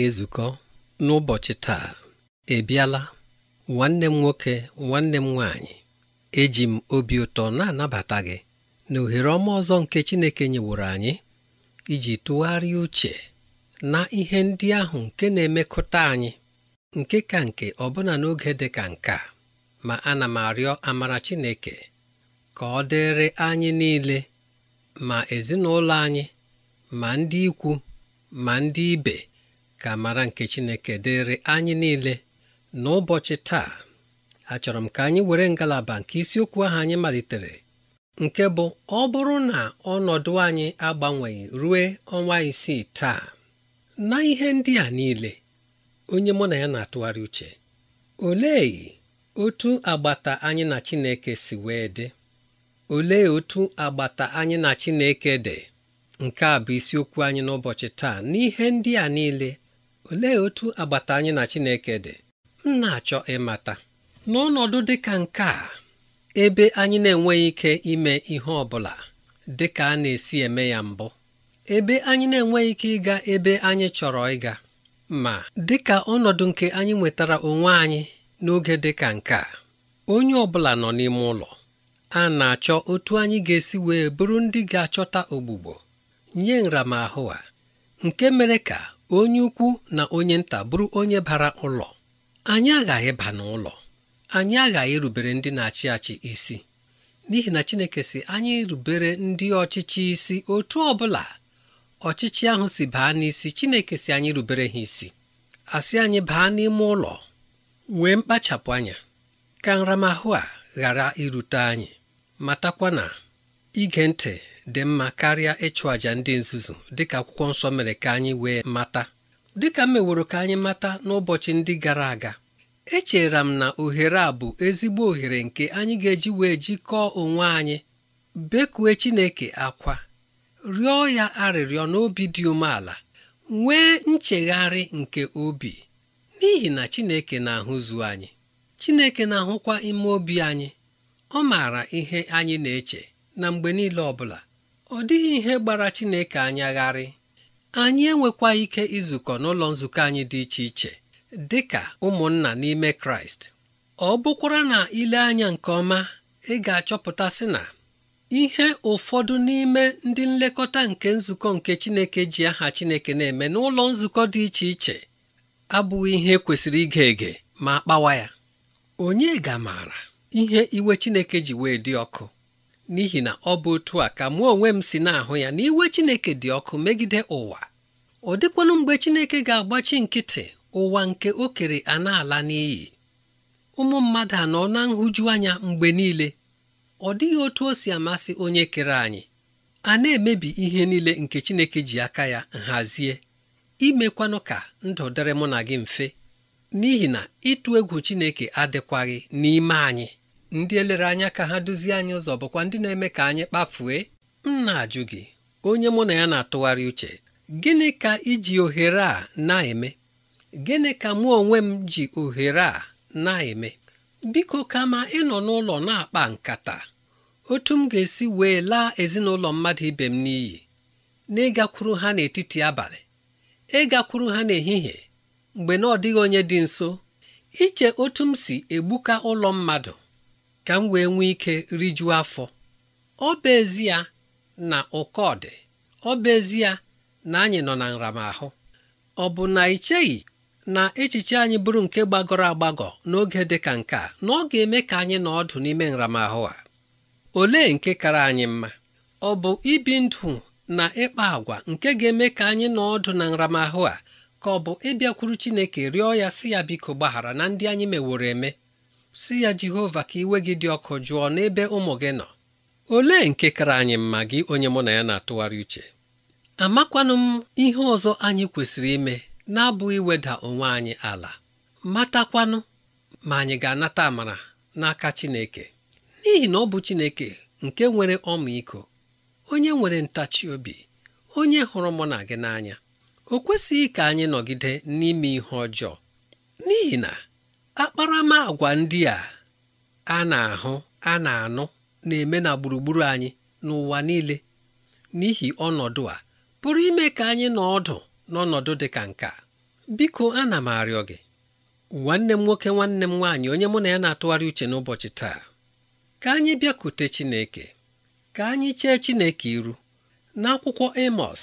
na-ezukọ n'ụbọchị taa ebiala nwanne m nwoke nwanne m nwanyị, eji m obi ụtọ na-anabata gị na ohere ọma ọzọ nke Chineke nyeworo anyị iji tụgharịa uche na ihe ndị ahụ nke na-emekọta anyị nke ka nke ọbụna n'oge dị ka nke a ma ana m arịọ amara Chineke ka ọ dịrị anyị niile ma ezinụlọ anyị ma ndị ikwu ma ndị ibe ka mara nke Chineke dịrị anyị niile n'ụbọchị taa achọrọ m ka anyị were ngalaba nke isiokwu ahụ anyị malitere nke bụ ọ bụrụ na ọnọdụ anyị agbanweghị rue ọnwa isii taa na ihe ndị a niile onye mụ na ya na-atụgharị uche olee otu agbata anyị na Chineke si wee dị olee otu agbata anyị na Chineke dị nke a bụ isiokwu anyị n'ụbọchị taa n'ihe ndị a niile olee otu agbata anyị na Chineke dị m na-achọ ịmata n'ọnọdụ dị ka nke a ebe anyị na-enweghị ike ime ihe ọ bụla dị ka a na-esi eme ya mbụ ebe anyị na-enweghị ike ịga ebe anyị chọrọ ịga ma dị ka ọnọdụ nke anyị nwetara onwe anyị n'oge dị ka nke a onye ọ bụla nọ n'ime ụlọ a na-achọ otu anyị ga-esi wee bụrụ ndị ga-achọta ogbugbo nye nramahụ a nke mere ka onye ukwu na onye nta bụrụ onye bara ụlọ anyị aghaghị ba n'ụlọ anyị aghaghị rubere ndị na-achị achị isi n'ihi na Chineke si anyị rubere ndị ọchịchị isi otu ọbụla. ọchịchị ahụ si baa n'isi Chineke si anyị rubere ha isi asị anyị baa n'ime ụlọ wee mkpachapụ anya ka nramahụ a ghara irute anyị matakwa na ige ntị dị mma karịa ịchụ àjà ndị nzuzu dịka akwụkwọ nsọ mere ka anyị wee mata dịka m meworo ka anyị mata n'ụbọchị ndị gara aga echera m na ohere a bụ ezigbo ohere nke anyị ga-eji wee jikọọ onwe anyị bekue Chineke akwa rịọ ya arịrịọ n'obi dị umeala nwee nchegharị nke obi n'ihi na Chineke na-ahụzu anyị Chineke na-ahụkwa ime obi anyị ọ maara ihe anyị na-eche na mgbe niile ọ bụla ọ dịghị ihe gbara Chineke anyagharị anyị enwekwa ike izukọ n'ụlọ nzukọ anyị dị iche iche dị ka ụmụnna n'ime Kraịst ọ bụkwara na ile anya nke ọma ị ga-achọpụta sị na ihe ụfọdụ n'ime ndị nlekọta nke nzukọ nke Chineke ji aha Chineke na-eme n'ụlọ nzukọ dị iche iche abụghị ihe kwesịrị ige ege ma kpawa ya onye ga-amaara ihe iwe Chineke ji wee dị ọkụ n'ihi na ọ bụ otu a ka mụ onwe m si na-ahụ ya na iwe Chineke dị ọkụ megide ụwa ọ dịkwanụ mgbe Chineke ga-agbachi nkịtị ụwa nke o kere a na-ala n'iyi ụmụ mmadụ anọ na nhụju anya mgbe niile ọ dịghị otu o si amasị onye kere anyị a na-emebi ihe niile nke Chineke ji aka ya nhazie imekwanụ ka ndụ dịrị mụ na gị mfe n'ihi na ịtụ egwu Chineke adịkwaghị n'ime anyị ndị elere anya ka ha duzie anyị ụzọ bụkwa ndị na-eme ka anyị kpafue m na-ajụ gị onye mụ na ya na-atụgharị uche gịnị ka iji ohere a na-eme gịnị ka mụ onwe m ji ohere a na-eme biko kama ịnọ n'ụlọ na-akpa nkata otu m ga-esi wee laa ezinụlọ mmadụ ibe m n'iyi n'ịgakwuru ha n'etiti abalị ịgakwuru ha n'ehihie mgbe na ọ dịghị onye dị nso iche otu m si egbuka ụlọ mmadụ ka m wee nwee ike rijuo afọ ọ bụ ezie na ụkọ dị ọ bụ ezie na anyị nọ na nramahụ ọ bụ na ị cheghị na echiche anyị bụrụ nke gbagọrọ agbagọ n'oge dị ka nke a na ọ ga-eme ka anyị nọ ọdụ n'ime nramahụ a olee nke kara anyị mma ọ bụ ibi ndụ na ịkpa agwa nke ga-eme ka anyị nọ ọdụ na nramahụ a ka ọ bụ ịbịakwuru Chineke rịọ ya si ya biko gbaghara na ndị anyị meworo eme si ya Jehova ka iwe gị dị ọkụ jụọ n'ebe ụmụ gị nọ olee nke kara anyị mma gị onye mụ na ya na-atụgharị uche amakwanụ m ihe ọzọ anyị kwesịrị ime na-abụghị iweda onwe anyị ala matakwanụ ma anyị ga-anata amara n'aka Chineke n'ihi na ọ bụ Chineke nke nwere ọmịiko onye nwere ntachi obi onye hụrụ mụ na gị n'anya o kwesịghị ka anyị nọgide n'ime ihe ọjọọ n'ihi na akparamagwa ndị a a na-ahụ a na-anụ na-eme na gburugburu anyị n'ụwa niile n'ihi ọnọdụ a pụrụ ime ka anyị nọ ọdụ n'ọnọdụ dị ka nke a biko ana m arịọ gị nwanne m nwoke nwanne m nwaanyị onye mụ na ya na-atụgharị uche n'ụbọchị taa ka anyị bịakute Chineke ka anyị chee Chineke iru n'akwụkwọ Amos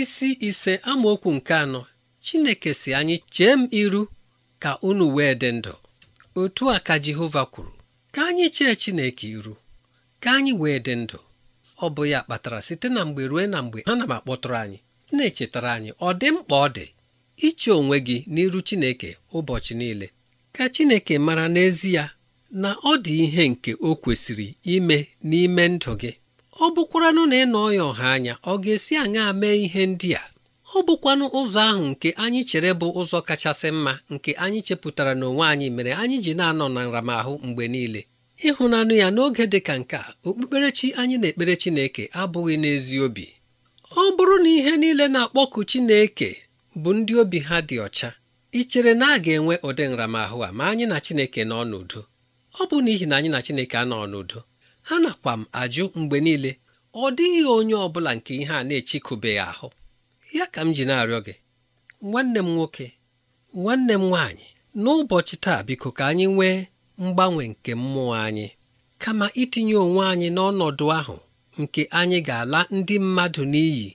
isi ise amaokwu nke anọ Chineke si anyị chee m iru ka unu wee dị ndụ otu a ka Jehova kwuru ka anyị chee Chineke iru ka anyị wee dị ndụ ọ bụ ya kpatara site na mgbe ruo na mgbe ha na m akpọtụrụ anyị na-echetara anyị ọ dị mkpa ọ dị iche onwe gị n'iru Chineke ụbọchị niile ka Chineke mara n'ezie na ọ dị ihe nke o kwesịrị ime n'ime ndụ gị ọ bụkwara na ị nọọ ya ọha anya ọ ga-esi aṅaa mee ihe ndị a ọ bụkwanụ ụzọ ahụ nke anyị chere bụ ụzọ kachasị mma nke anyị chepụtara n'onwe anyị mere anyị ji na-anọ na nramahụ mgbe niile ịhụnanụ ya n'oge dị ka nke a okpukperechi anyị na-ekpere Chineke abụghị n'ezi obi ọ bụrụ na ihe niile na-akpọku Chineke bụ ndị obi ha dị ọcha ị chere na a ga-enwe ụdị nramahụ a ma anyị na Chineke nọ n'udo ọ bụ n'ihi na anyị na Chineke anọ n'udo a nakwa m ajụ mgbe niile ọ dịghị onye ọ bụla nke ihe a na-echikụbeghị ahụ ya ka m ji na-arịọ gị nwanne m nwoke nwanne m nwaanyị n'ụbọchị taa biko ka anyị nwee mgbanwe nke mmụọ anyị kama itinye onwe anyị n'ọnọdụ ahụ nke anyị ga-ala ndị mmadụ n'iyi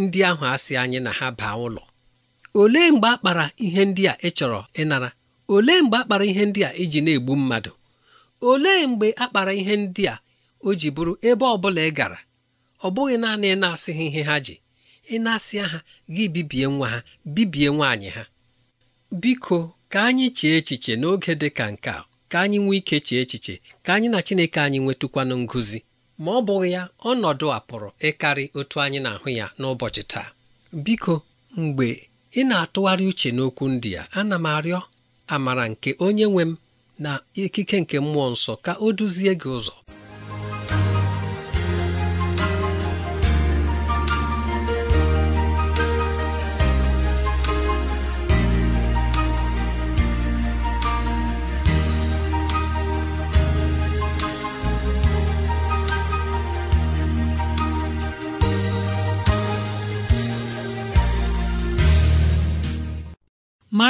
ndị ahụ asị anyị na ha baa ụlọ olee mgbe a kpara ihe ndị a ị chọrọ ịnara olee mgbe akpara ihe ndị a iji na-egbu mmadụ olee mgbe a kpara ihe ndị a o ji bụrụ ebe ọ bụla ị gara ọ bụghị naanị na-asịghị ihe ha ji ị na-asịa ha gị bibie nwa ha bibie nwaanyị ha biko ka anyị chee echiche n'oge dị ka nke a ka anyị nwee ike chee echiche ka anyị na Chineke anyị nwetụkwanụ ngụzi ma ọ bụghị ya ọnọdụ a pụrụ ịkarị otu anyị na-ahụ ya n'ụbọchị taa biko mgbe ị na-atụgharị uche n'okwu ndị a ana m arịọ amara nke onye nwe m na ikike nke mmụọ nsọ ka o duzie gị ụzọ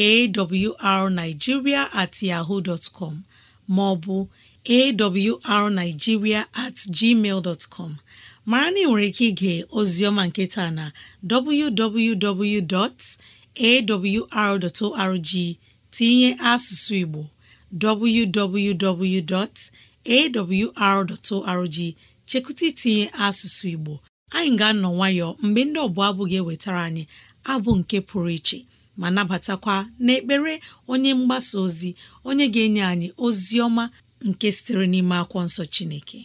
awrnigeria at yaho dot com maọbụ awrnigeria at gmail com mara na ị nwere ike ige ozioma nketa na www.awr.org tinye asụsụ Igbo www.awr.org chekụta itinye asụsụ Igbo anyị ga-anọ nwayọọ mgbe ndị ọbụla abụ ga-ewetara anyị abụ nke pụrụ iche ma nabatakwa n'ekpere onye mgbasa ozi onye ga-enye anyị ozi ọma nke sitere n'ime akwụkwọ nsọ Chineke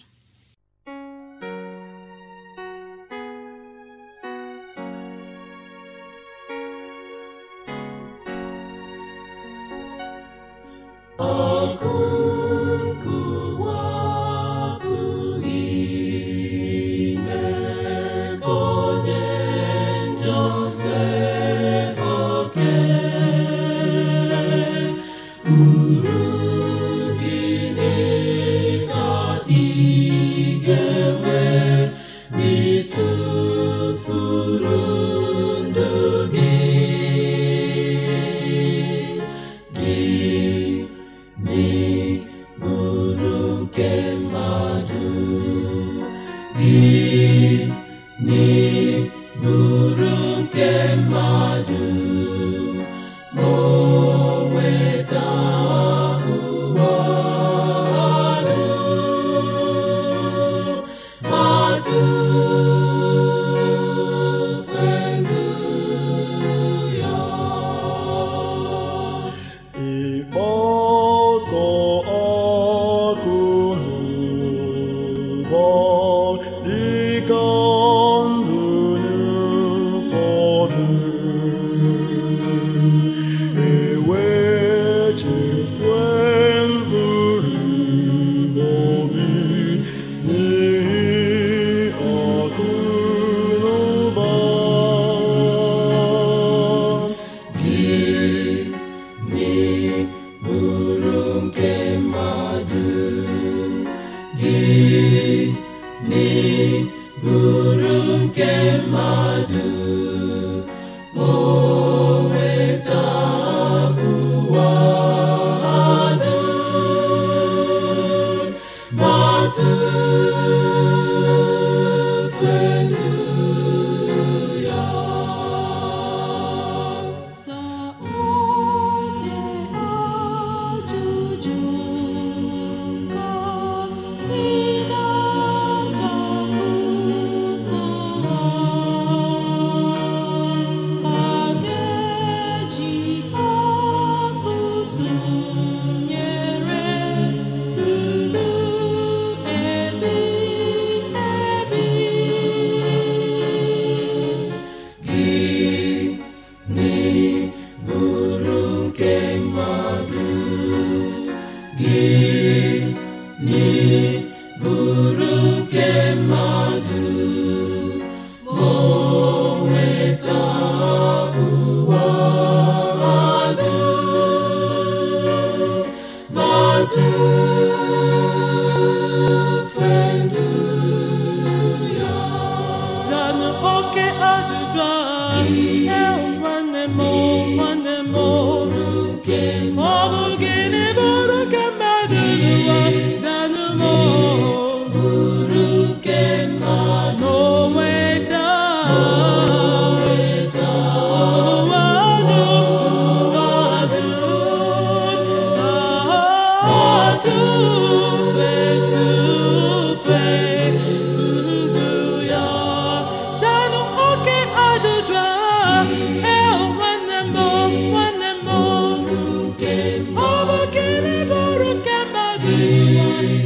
thee.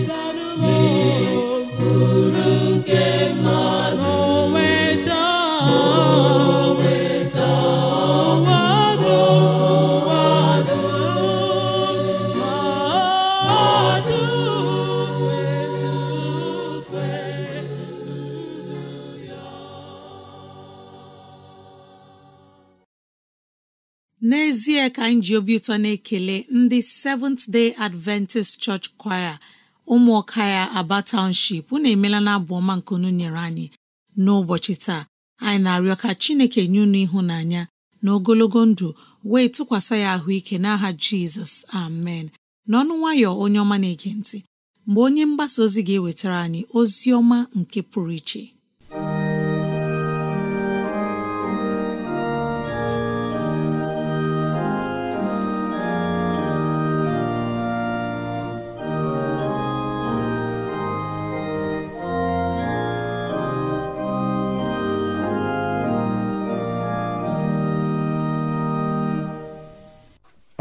anyị ji obi ụtọ na-ekele ndị Seventh Day Adventist Church Choir ụmụọka ya Aba Township unu emela na abụ ọma nke unu nyere anyị n'ụbọchị taa anyị na-arịọ ka Chineke nye unu ịhụnanya na ogologo ndụ wee tụkwasị ya ahụike n'aha Jizọs amen n'ọnụ nwayọ onye ọma na-ege ntị mgbe onye mgbasa ozi ga-ewetara anyị ozi ọma nke pụrụ iche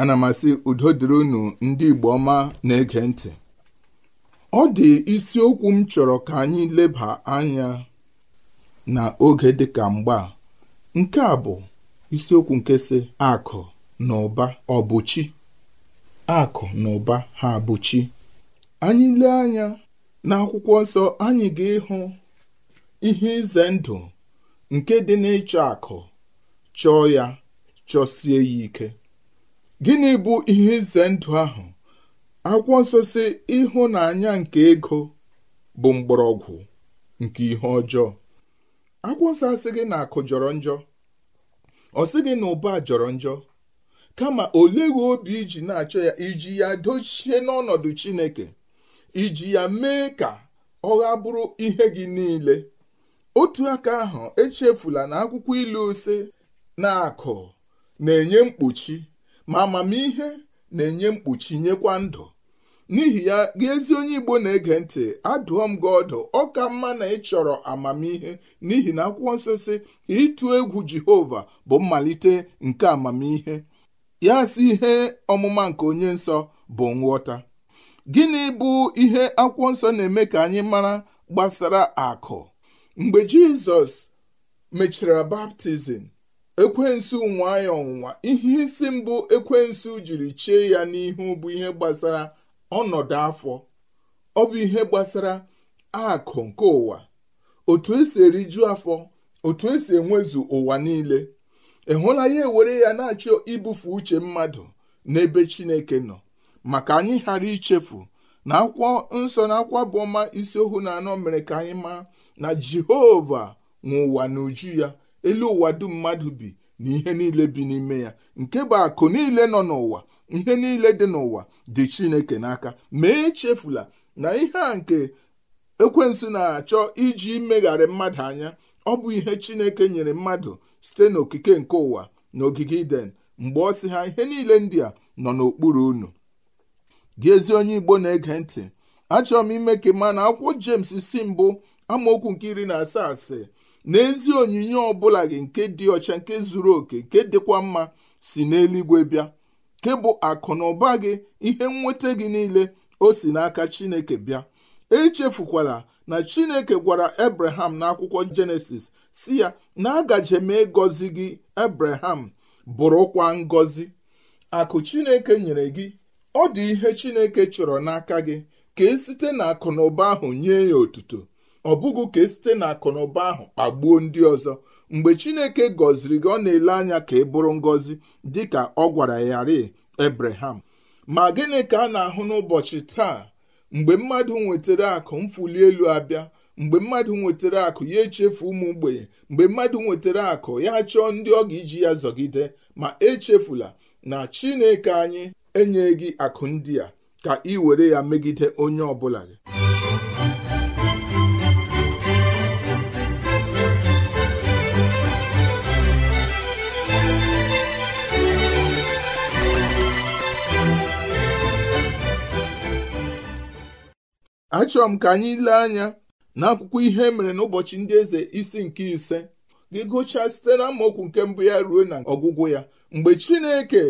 ana m asị udo dịrị unu ndị Igbo ọma na-ege ntị ọ dị isiokwu m chọrọ ka anyị leba anya na oge dịka mgba nke a bụ isiokwu nke si akụ na ụba ọbụchi akụ na ụba ha bụchi anyị lee anya n'akwụkwọ nsọ anyị ga-ịhụ ihe ize ndụ nke dị n'ịchọ akụ chọọ ya chọsie ya ike gịnị bụ ihe ize ndụ ahụ akwụkwọ nsọ si ịhụnanya nke ego bụ mgbọrọgwụ nke ihe ọjọọ akwụkwọ nsọ asịghị na akụ jọrọ njọ ọ sịghị na ụba jọrọ njọ kama oleghị obi iji na-achọ ya iji ya dochie n'ọnọdụ chineke iji ya mee ka ọ gha bụrụ ihe gị niile otu aka ahụ echefula na akwụkwọ ilu ose na akụ na-enye mkpuchi ma amamihe na-enye mkpuchi nyekwa ndụ n'ihi ya gị ezi onye Igbo na-ege ntị adụọ m gị ọdụ ọ ka mma na ị chọrọ amamihe n'ihi na akwụkwọ nsọ si ịtụ egwu Jehova bụ mmalite nke amamihe ya si ihe ọmụma nke onye nsọ bụ nghọta gịnị bụ ihe akwụkwọ nsọ na-eme ka anyị mara gbasara akụ mgbe Jizọs mechara baptizim ekwensu nwa ya ọnwụnwa ihe isi mbụ ekwensu jiri chie ya n'ihu bụ ihe gbasara ọnọdụ afọ ọ bụ ihe gbasara akụ nke ụwa otu esi eriju afọ otu esi enwezu ụwa niile ịhụla ya ewere ya na-achọ ibufe uche mmadụ n'ebe chineke nọ maka anyị ghara ichefu na akwụkwọ nsọ na akwụkwọ bụ ọma isi ohu na anọ mere ka anyị maa na jehova nwe ụwa n'uju ya elu ụwa dum mmadụ bi na ihe niile bi n'ime ya nke bụ akụ niile nọ n'ụwa ihe niile dị n'ụwa dị chineke n'aka mee echefula na ihe a nke ekwensu na-achọ iji imegharị mmadụ anya ọ bụ ihe chineke nyere mmadụ site n'okike nke ụwa na ogige iden mgbe ọ sị ha ihe niile ndị a nọ n'okpuru unu gị ezi onye igbo na-ege ntị achọrọ m ime ka ma na akwụkwọ jemes si mbụ amaokwu nke iri na asaa asị n'ezi onyinye ọbụla gị nke dị ọcha nke zuru oke nke dịkwa mma si n'eluigwe bịa nke bụ akụ na ụba gị ihe nweta gị niile o si n'aka chineke bịa echefukwala na chineke gwara abraham n'akwụkwọ jenesis si ya na agaje m ịgọzi gị abraham bụrụkwa ngọzi akụ chineke nyere gị ọ dị ihe chineke chọrọ n'aka gị ka e site na akụ na ụba ahụ nye ya otuto ọ bụghị ka esite na akụnụba ahụ kpagbuo ndị ọzọ mgbe chineke gọziri gị ọ na-ele anya ka ị bụrụ ngọzi dị ka ọ gwara ya ri ebraham ma gịnị ka a na-ahụ n'ụbọchị taa mgbe mmadụ nwetara akụ mfuli elu abịa mgbe mmadụ nwetara akụ ya echefu ụmụ mgbei mgbe mmadụ nwetara akụ ya chọọ ndị ọ ga-iji ya zọgide ma echefula na chineke anyị enyeghị akụ ndị a ka ị were ya megide onye ọ bụla gị achọrọ m ka anyị lee anya n'akwụkwọ ihe e mere n'ụbọchị ndị eze isi nke ise gị gụchaa site na amaokwu nke mbụ ya ruo na ọgwụgwụ ya mgbe chineke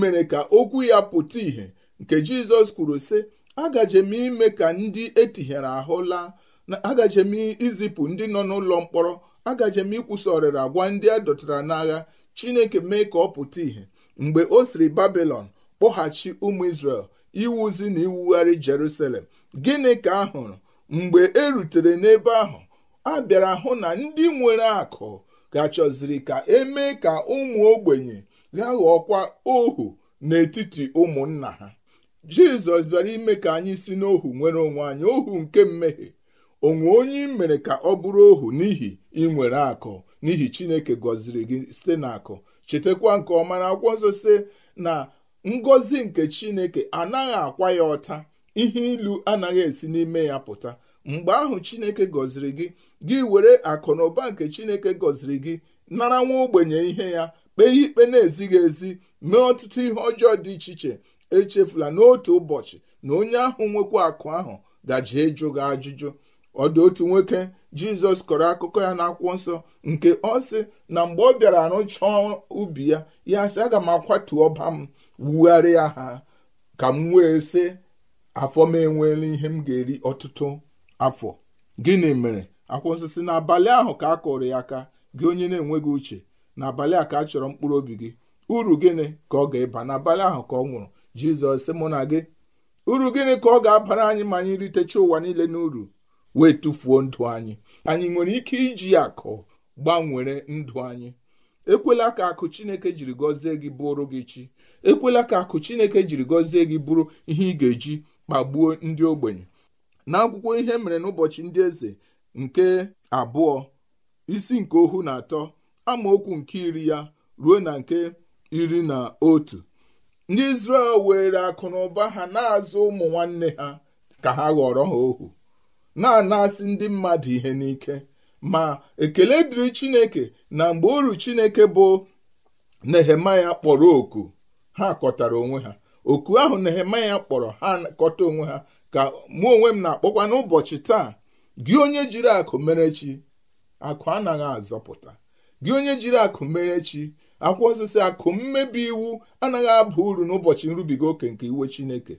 mere ka okwu ya pụta ìhè nke jizọs kwuru sị agaje m ime ka ndị etinyere ahụ laa na agaje m izipụ ndị nọ n'ụlọ mkpọrọ agaje m ikwusa ọrịra gwa ndị a dọtara n'agha chineke mee ka ọ pụta ìhè mgbe o siri babilon kpọghachi ụmụ israel iwuzi na iwugharị jerusalem gịnị ka a hụrụ mgbe e rutere n'ebe ahụ a bịara hụ na ndị nwere akụ gachọziri ka emee ka ụmụ ogbenye ya ghọọkwa ohu n'etiti ụmụnna ha jizọs bịara ime ka anyị si n'ohu nwere onwe anyị ohu nke mmehie onwe onye mere ka ọ bụrụ ohu n'ihi inwere akụ n'ihi chineke gọziri gị site n'akụ chetakwa nke ọma na akwụkwọ nsọ si na ngọzi nke chineke anaghị akwa ya ọta ihe ilu anaghị esi n'ime ya pụta mgbe ahụ chineke gọziri gị gị were akụ na ụba nke chineke gọziri gị nara nwa ogbenye ihe ya kpee ikpe na-ezighị ezi mee ọtụtụ ihe ọjọọ dị iche iche echefula n'otu ụbọchị na onye ahụ nwekwa akụ ahụ gaji ịjụ gị ajụjụ ọ dị otu nwoke jizọs kọrọ akụkọ ya n'akwụkwọ nsọ nke ọ sị na mgbe ọ bịara rụchaa ubi ya ya sị aga m akwatu ọba m wugharịa ha ka m wee sị afọ m enweela ihe m ga-eri ọtụtụ afọ gịnị mere akwụsịsị nsọ si n'abalị ahụ ka a kụrụ ya aka gị onye na-enweghị uche n'abalị a ka a chọrọ mkpụrụ obi gị uru gịnị ka ọ ga-eba n'abalị ahụ ka ọ nwụrụ jizọs sị mụ na gị uru gịnị ka ọ ga-abara anyị ma anyị ritecha ụwa niile n'uru wee tụfuo ndụ anyị anyị nwere ike iji akụ gbanwere ndụ anyị ekwela ka akụ chineke jiri gọzie gị bụrụ gị chi ekwela ka akụ chineke jiri gọzie gị bụrụ ihe ị ga-eji kpagbuo ndị ogbenye n'akwụkwọ ihe mere n'ụbọchị ndị eze nke abụọ isi nke ohu na atọ amaokwu nke iri ya ruo na nke iri na otu ndị Izrel were akụ na ụba ha na-azụ ụmụ nwanne ha ka ha ghọrọ ha ohu na-anasị ndị mmadụ ihe n'ike ma ekele dịrị Chineke na mgbe uru Chineke bụ Nehemaya kpọrọ oku ha kọtara onwe ha oku ahụ Nehemaya kpọrọ ha kọta onwe ha ka mụ onwe m na-akpọkwa n'ụbọchị taa gị onye jiri akụ mere chi akụ anaghị azọpụta gị onye jiri akụ mere chi akwụkwọ osisi akụ mmebi iwu anaghị aba uru n'ụbọchị nrubiga oke nke iwe Chineke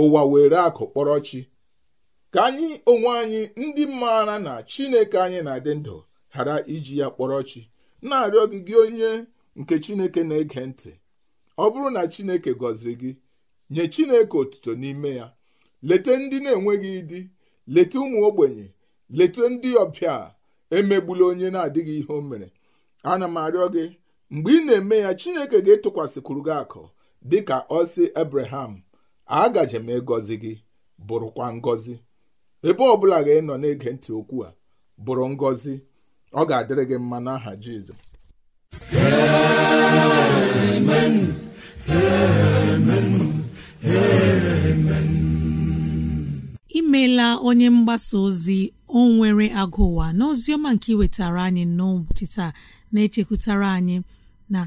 ụwa were akụ kpọrọ chi ka anyị onwe anyị ndị maara na Chineke anyị na-adị ndụ ghara iji ya kpọrọ chi na-arịọ gị gị onye nke Chineke na-ege ntị ọ bụrụ na Chineke gọziri gị nye Chineke otuto n'ime ya leta ndị na-enweghị di leta ụmụ ogbenye leta ndị ọbịa emegbula onye na-adịghị ihe o mere ana m arịọ gị mgbe ị na-eme ya Chineke ga-etụkwasịkwuru gị akụ dị ka ọsị Abraham agaje m egozi gị bụrụkwa ngozi ebe ọ bụla ga nọ na-ege ntị okwu a bụrụ ngọzi ọ ga-adịrị gị mma n'aha Jizọs onye mgbasa ozi o nwere agụ ụwa n'ozi ọma nke iwetara anyị n'ụbọchị taa na-echekwutara anyị na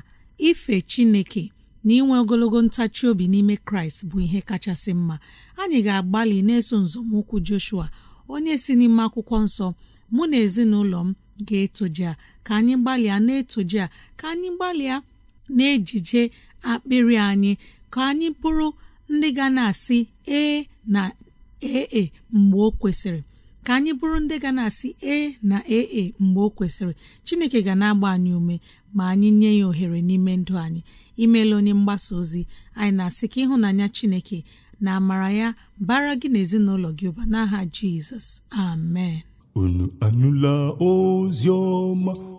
ife Chineke na inwe ogologo ntachi obi n'ime Kraịst bụ ihe kachasị mma anyị ga-agbalị na-eso nzọmụkwụ Joshua onye si n'ime akwụkwọ nsọ mụ na ezinụlọ m ga-etoje ka anyị gbalịa na-etoje ka anyị gbalịa na-ejije akpịrị anyị ka anyị bụrụ ndị ga na-asị ee na ee mgbe o kwesịrị ka anyị bụrụ ndị ga na-asị ee na ee mgbe o kwesịrị chineke ga na-agba anyị ume ma anyị nye ya ohere n'ime ndụ anyị imeela onye mgbasa ozi anyị na-asị ka ịhụnanya chineke na amara ya bara gị na gị ụba n'aha jizọs amen unu anụla ozi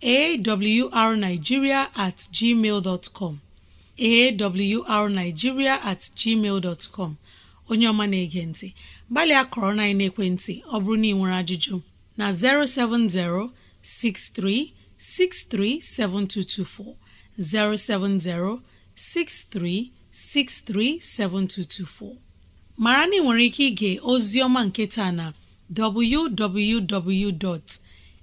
arnigiria at gmail com at gmail com onye ọma na-ege ntị gbalịa kọrọ na ekwentị ọ bụrụ na ị nwere ajụjụ na 070 -63 -63 070 -63 -63 -7224. 63637224 mara na ị nwere ike ịga ozi ọma nke taa na www.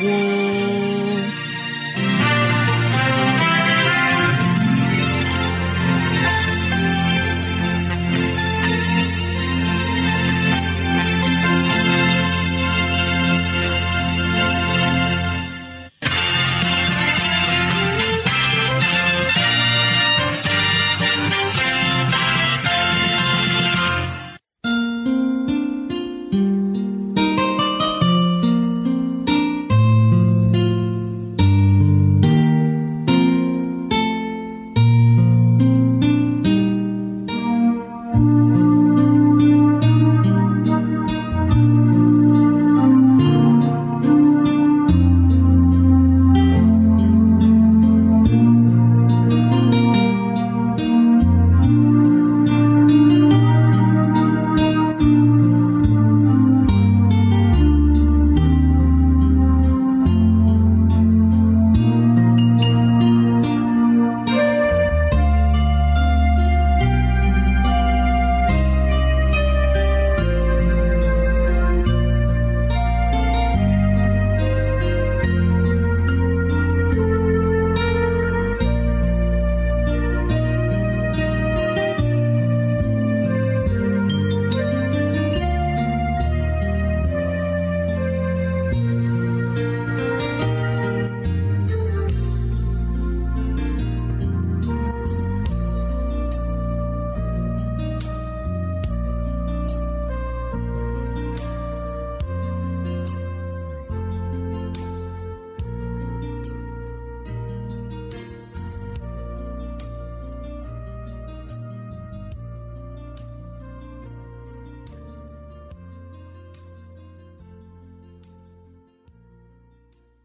woo!